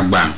agba